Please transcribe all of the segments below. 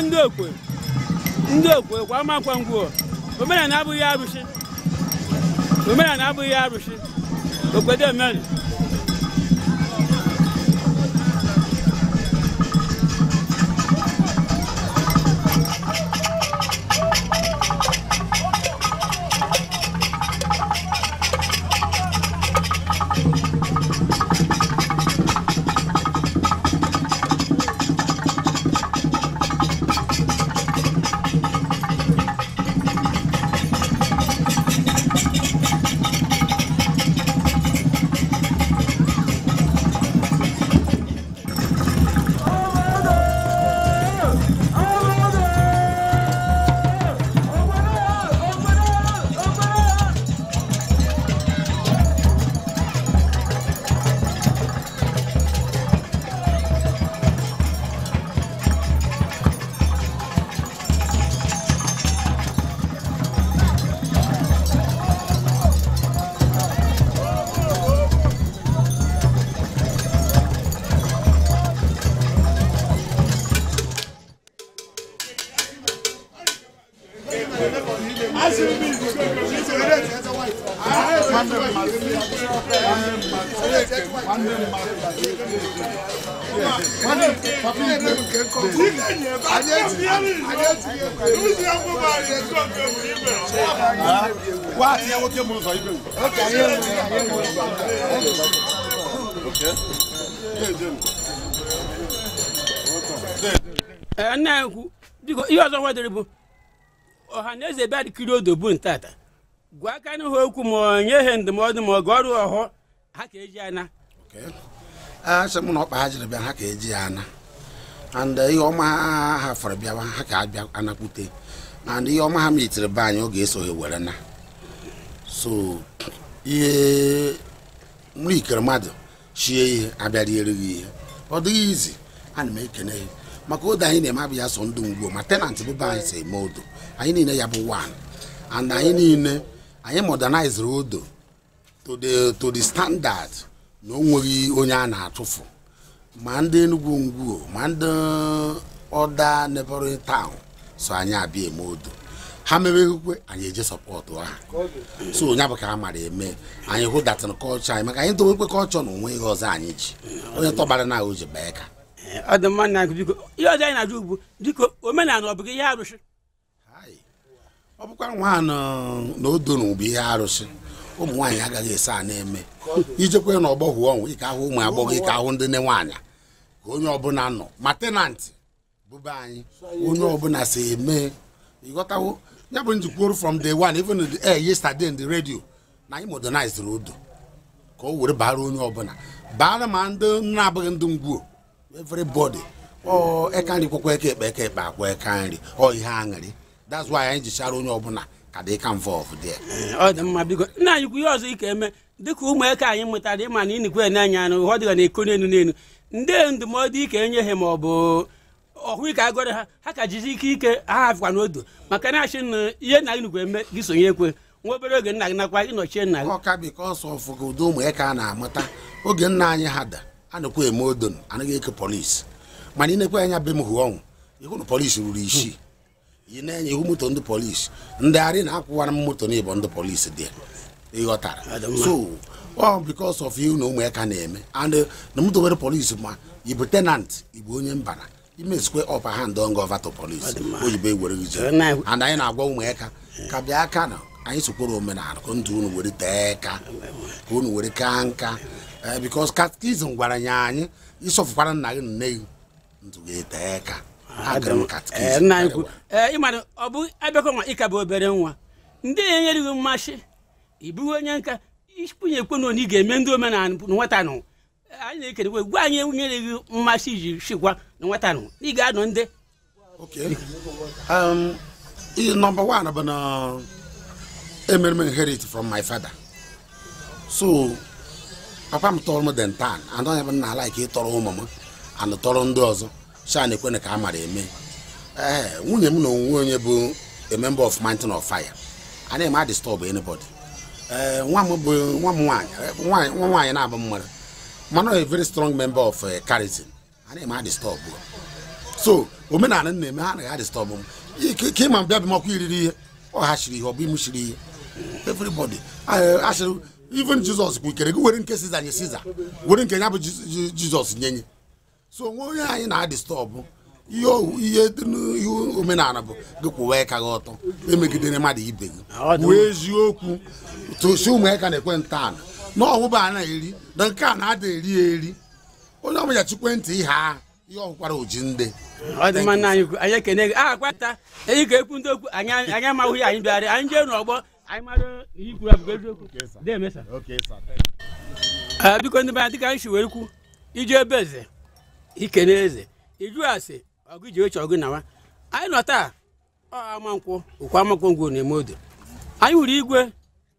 kwa ndị okwe ndị okwe kwa amakwa ngwuo omenala abụghị arụsị omenala abụghị arụsị okwedo emeri wá àti ẹwọ́ kí mo biko ihe ọzọ nwadoro bụ ọha bịa dịkiri odo bụ ntata gwa aka n'ihu okwu ma ọ ihe ndụmọdụ ma ọ ga ọrụ ọhụụ ha ka eji ana asị m na ọkpa ha jiri bịa ha ka eji ya ana and eh, ihe ọma ha hafere bịawa ha ka abịa anakwute and ihe ọma ha metiri be anyị oge esoghị were na so ihe nri ikere mmadụ chie ihe abịariere gị ihe ọ dịghị izi ana m ekene ya maka odo anyị na-eme abụ ya so ndụ mgbo ma tenant bụbe anyị si eme odo anyị niile ya bụ wan and anyị niile anyị moderniziri odo to the to the standard na o nweghị onye a na-atụfu ma ndị Enugwu Ngwo ma ndị ọda neighboring town so anyị abịa eme odo ha mebeghịkwe anyị eje sọpọtụ ha so onye bụ ka a mara eme anyị hụ datin kọlchọ anyị maka anyị dowekwe kọlchọ na onwe ihe ọzọ anyị ji onye tọgbara na o ji bee ka ọ na biko ihe ọzọ anyị na-ajụ ugbu dịka omenala ọ ihe arụsị ọ bụkwa nwa na odo na bụ ihe arụsị ụmụ nwaanyị agaghị esi a na-eme ijekwe n'ọgbọ hụ ọnwụ ike ahụ ụmụ agbọghọ ike ahụ ndị ne nwaanyị ka onye ọbụla nọ ma tenantị bụba anyị onye ọbụla si eme ịghọtawo ya bụ njikwuru from day one even the air eh, yesterday in the radio na anyị modernized odo ka o were bara onye ọbụla bara ma ndị na-abụghị ndị ngwuo everybody ọ eka nri kwekwa eke ekpe eke ekpe akwa eka nri ọ ihe aṅụrị that's why anyị jichara onye ọbụla ka dị ka mfe ọfụ ọ dị mma biko nna anyị kwu ihe ọzọ ike eme dịka ụmụaka anyị mụtara ịma na ịnịkwe na-anya anụ ụhọ dịga na eko n'elu n'elu ndị ndụmọdụ ike enye ha ma ọ bụ ọhụ ike agọrọ ha ha ka jizi ike ike ha hafịkwa n'odo maka na achị na ihe na ịnịkwe eme gị sonye ekwe nwa obere oge nna gị nakwa ịnọchie nna gị ọka biko ọsọ ụmụaka a na-amụta oge nna anyị ha da anakwa eme odon anaghị eke polisi mana ịnekwe anya be hụ ọnwụ ịhụ na polisi ruru isii ị na-enye ihu moto ndị polisi ndị arị na-akwụwara m moto n'ịbọ ndị polisi dị ịghọtara so ọ because of iu na ụmụaka na-eme and eh, na moto nwere polisi ma ịbụ tenant ịbụ onye mbara imezikwe ọpa hand on gova to polisi oyibo ewere gị and anyị na-agwa ụmụaka ka bịa aka na anyị sokworo omenala ka ndụ unu were tee ka ka unu were kaa nka eh, because catechism gwara ya anyị ịsọfụkwara nna gị nne gị ndụ ga-ete ka nna anyị kwu ọ bụ abịakọ ịka bụ obere nwa ndị na gị mmasị ị bụghị onye nka ikpunye ekwe na ị ga-eme ndị omenala nwata e, anyị na gwa anyị mmasị iji na ị ga ndị nọmba wan bụ na emere inherit from my father so papa m tọrọ m den ụmụ m anụ ndị ọzọ so a na-ekwe ka a mara eme ee nwunye m na onwe onye bụ a member of mountain of fire a na-eme a disturb anybody ee nwa m bụ nwa m nwaanyị nwa nwaanyị na-abụ mmadụ mana a very strong member of Karitin eh, a na-eme a disturb so omenala na-eme ha anaghị adịstọbụ m ike ịma mbịa bịa makwa iriri ihe ọ ha chiri ihe ọ bụ imu chiri ihe everybody asịrị even Jizọs kwukere gị were nke Siza nye Siza were nke ya bụ Jizọs nyenye so onwe onye anyị na-adịstọbụ ihe dị ihe n'ihu omenala bụ gị kwụwa ịka gị ọtọ emegidere mmadụ ibe gị wee eziokwu tosi ụmụaka na-ekwe ntọala na ọwụba a na-eri na nke a na-ada eri eri onye ọbụla chikwe ntị ihe a ihe ọkwara oji ndị anyị ekene gị aha kwata eyi ka ekwu ndị okwu anyị amaghị ya anyị bịara anyị jee n'ọgbọ anyị mara ihe kwuru abụgo eziokwu eh, biko ndị be anyị dịka anyị si wee kwu ije ebe eze ikele eze iju asị ọgụ ji oche ọgụ nawa anyị nọ taa amankwụ okwu amankwụ ngwụ na-eme odo anyị hụrụ igwe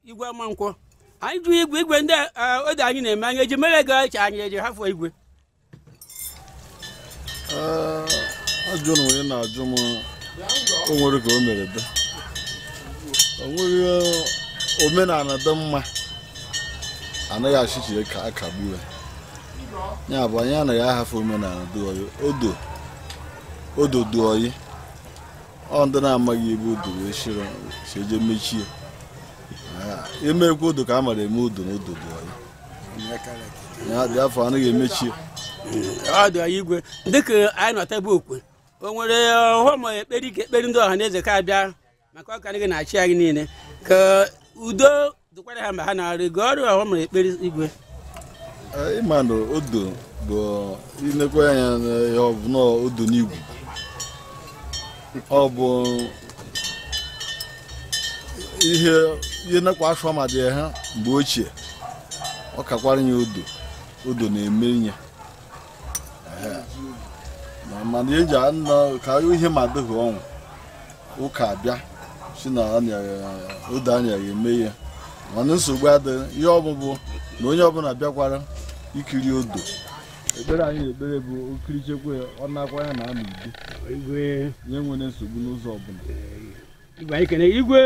igwe amankwụ anyị jụ igwe igwe ndị e, odo anyị na-eme anyị eji mere ego eche anyị eji hafụ igwe ajụrụ onye na-ajụ m o nwere ka o mere dị o nwere e, omenala dị mma anaghị achịchie ka akagbu ya ya bụ anyị anaghị ahafe omenala duoyi odo odo duoyi ọ ndị na-amaghị ebe odo wee shiro eje mechie ah, emekwa odo ka a mara eme odo na odo duoyi ya dị afọ anaghị emechie igwe dịka anyị nọta ebe okwe o nwere eh, ọghọm eh, ekpere ike ekpere ndị ọha na eze ka abịa maka ọka anyị na-achị anyị niile ka udo dịkwara ha ma ha na-arị ga ọrụ ọghọm ekpere igwe ịmadụ odo bụ inekwa anya ya ọbụna odo n'igwu ọ bụ ihe ihe nakwa afọ ma ha mgbe ochie ọ kakwara ya odo odo na-eme ya mana eji anọ ka ihe ma dịghị ọnwụ ụka abịa si na odo anya ya eme ya mana nsogbu adịghị ihe ọbụbụ na onye ọbụla bịakwara ikiri odo ekpere anyị ekpere bụ okirichekwe ọ na-akwa ya na anụ udo nye nwere nsogbu n'ụzọ ọbụla igwe